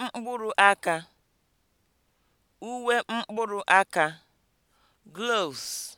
mkpụrụ aka uwe mkpụrụ aka (gloves)